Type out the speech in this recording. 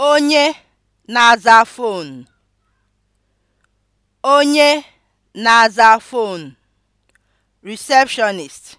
Onye na-aza fonu Onye na-aza fonu (Receptionist)